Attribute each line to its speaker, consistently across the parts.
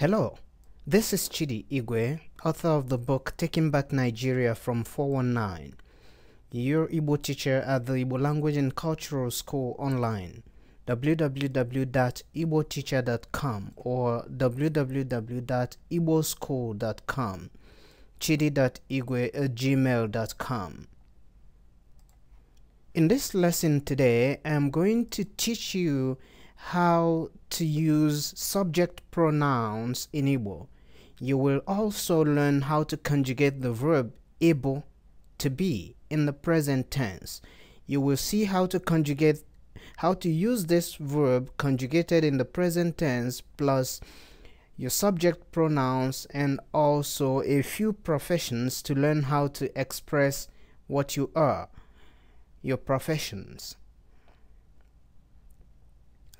Speaker 1: Hello, this is Chidi Igwe, author of the book Taking Back Nigeria from 419, your Igbo teacher at the Igbo Language and Cultural School online, www.ibo.teacher.com or www.iboschool.com, chidi.igwe at gmail.com. In this lesson today, I am going to teach you how to use subject pronouns in Igbo. You will also learn how to conjugate the verb Igbo to be in the present tense. You will see how to conjugate how to use this verb conjugated in the present tense plus your subject pronouns and also a few professions to learn how to express what you are, your professions.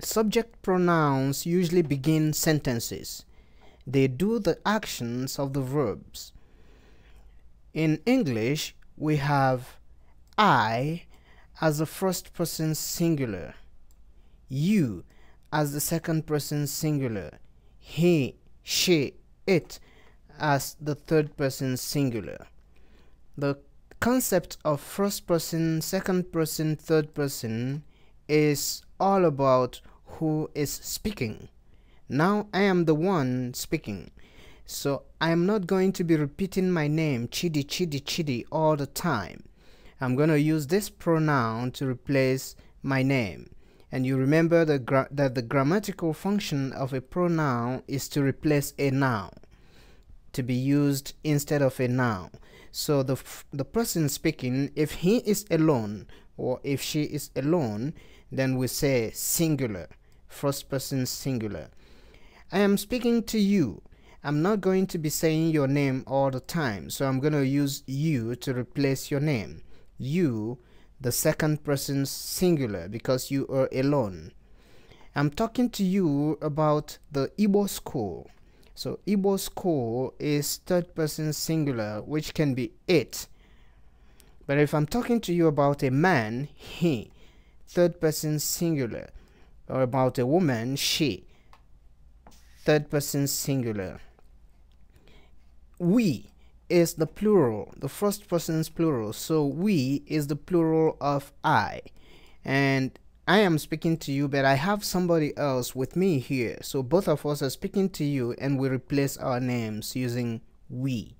Speaker 1: Subject pronouns usually begin sentences. They do the actions of the verbs. In English, we have I as the first person singular, you as the second person singular, he, she, it as the third person singular. The concept of first person, second person, third person is all about who is speaking. Now I am the one speaking. So I am not going to be repeating my name Chidi Chidi Chidi all the time. I'm going to use this pronoun to replace my name. And you remember the that the grammatical function of a pronoun is to replace a noun, to be used instead of a noun. So the, the person speaking, if he is alone or if she is alone, then we say singular first person singular. I am speaking to you. I'm not going to be saying your name all the time, so I'm going to use you to replace your name. You, the second person singular, because you are alone. I'm talking to you about the Ibo school. So Ibo school is third person singular, which can be it. But if I'm talking to you about a man, he, third person singular, or about a woman, she. Third person singular. We is the plural, the first person's plural. So we is the plural of I. And I am speaking to you, but I have somebody else with me here. So both of us are speaking to you, and we replace our names using we.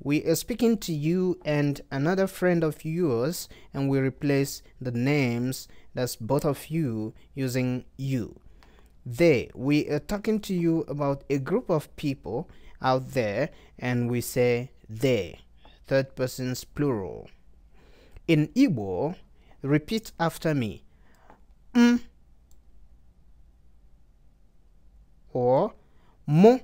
Speaker 1: We are speaking to you and another friend of yours and we replace the names that's both of you using you. They, we are talking to you about a group of people out there and we say they, third person's plural. In Igbo, repeat after me. Mm. Or mo.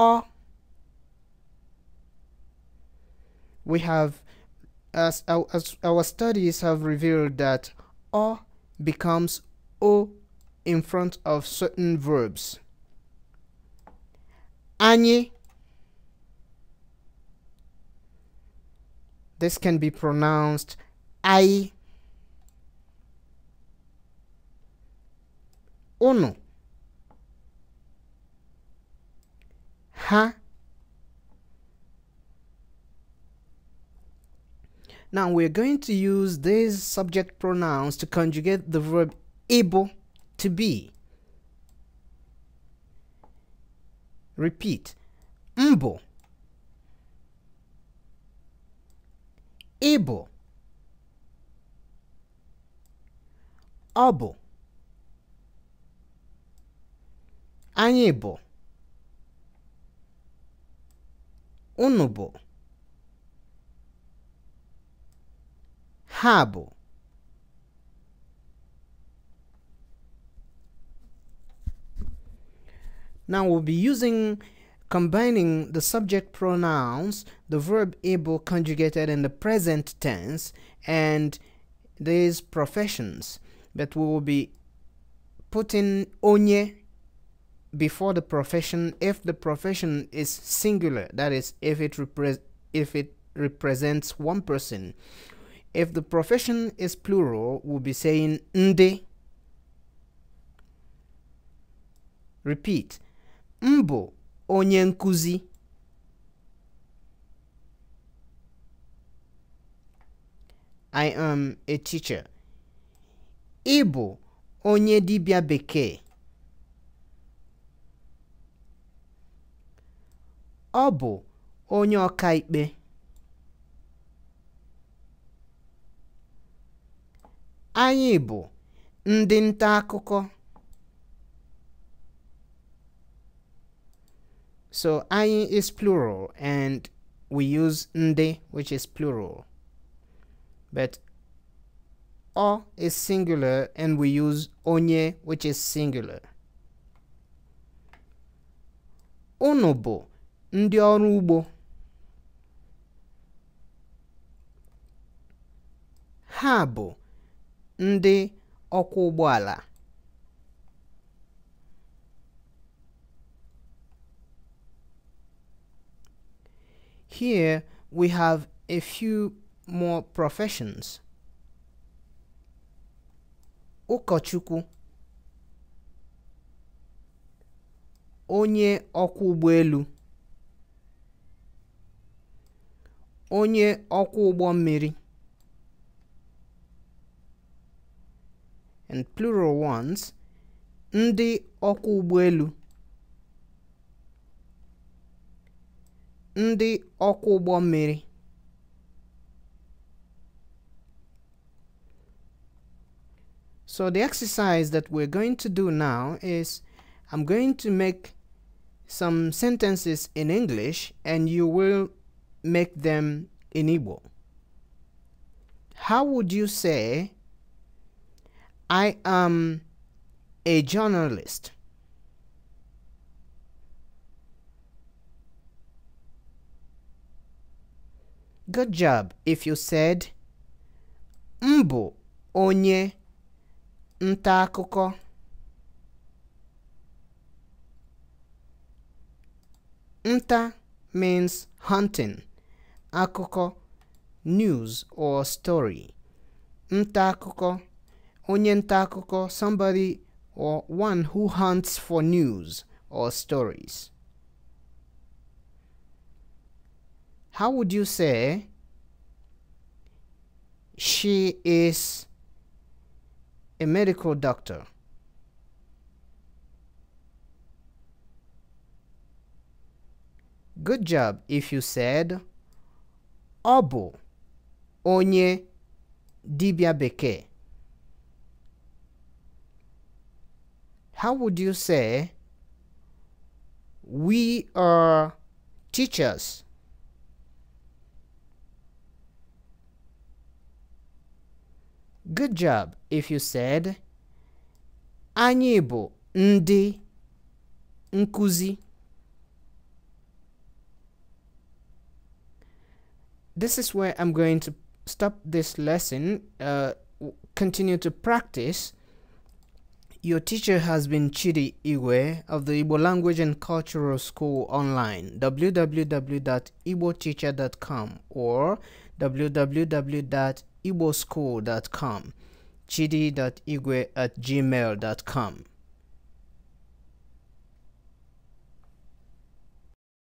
Speaker 1: or we have as our, as our studies have revealed that or becomes o in front of certain verbs Any. this can be pronounced i unu ha. Now we're going to use these subject pronouns to conjugate the verb able to be. Repeat. Mbo. Able. able, unable. Unubo. Rabo. Now we'll be using combining the subject pronouns, the verb able conjugated in the present tense, and these professions. But we will be putting onye before the profession if the profession is singular that is if it repre- if it represents one person if the profession is plural we'll be saying nde repeat mbo onyankusi. i am a teacher ibo onye dibia bekee ọ bụ onye ọkaikpe anyị bụ ndị nta akụkọ so anyị is plural and we use ndị which is plural but ọ is singular and we use onye which is singular unu bụ ndị ọrụ ugbo ha bụ ndị ọkwọ ụgbọala Here we have a few more professions. Ụkọchukwu onye ọkwọ ụgbọelu onye ọkwọ ụgbọ mmiri and plural ones ndị ọkwọ ụgbọelu ndị ọkwọ ụgbọ mmiri So the exercise that we're going to do now is I'm going to make some sentences in English and you will make them in How would you say, I am a journalist? Good job if you said, Mbu onye ntakuko. Nta means hunting akụkọ news or story nta akụkọ onye nta akụkọ somebody or one who hunts for news or stories how would you say she is a medical doctor Good job if you said ọ bụ onye dibia bekee how would you say we are teachers good job if you said anyị bụ ndị nkuzi this is where I'm going to stop this lesson, uh, continue to practice. Your teacher has been Chidi Iwe of the Igbo Language and Cultural School online, www.igboteacher.com or www.igboschool.com, chidi.igwe at gmail.com.